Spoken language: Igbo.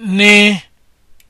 ni.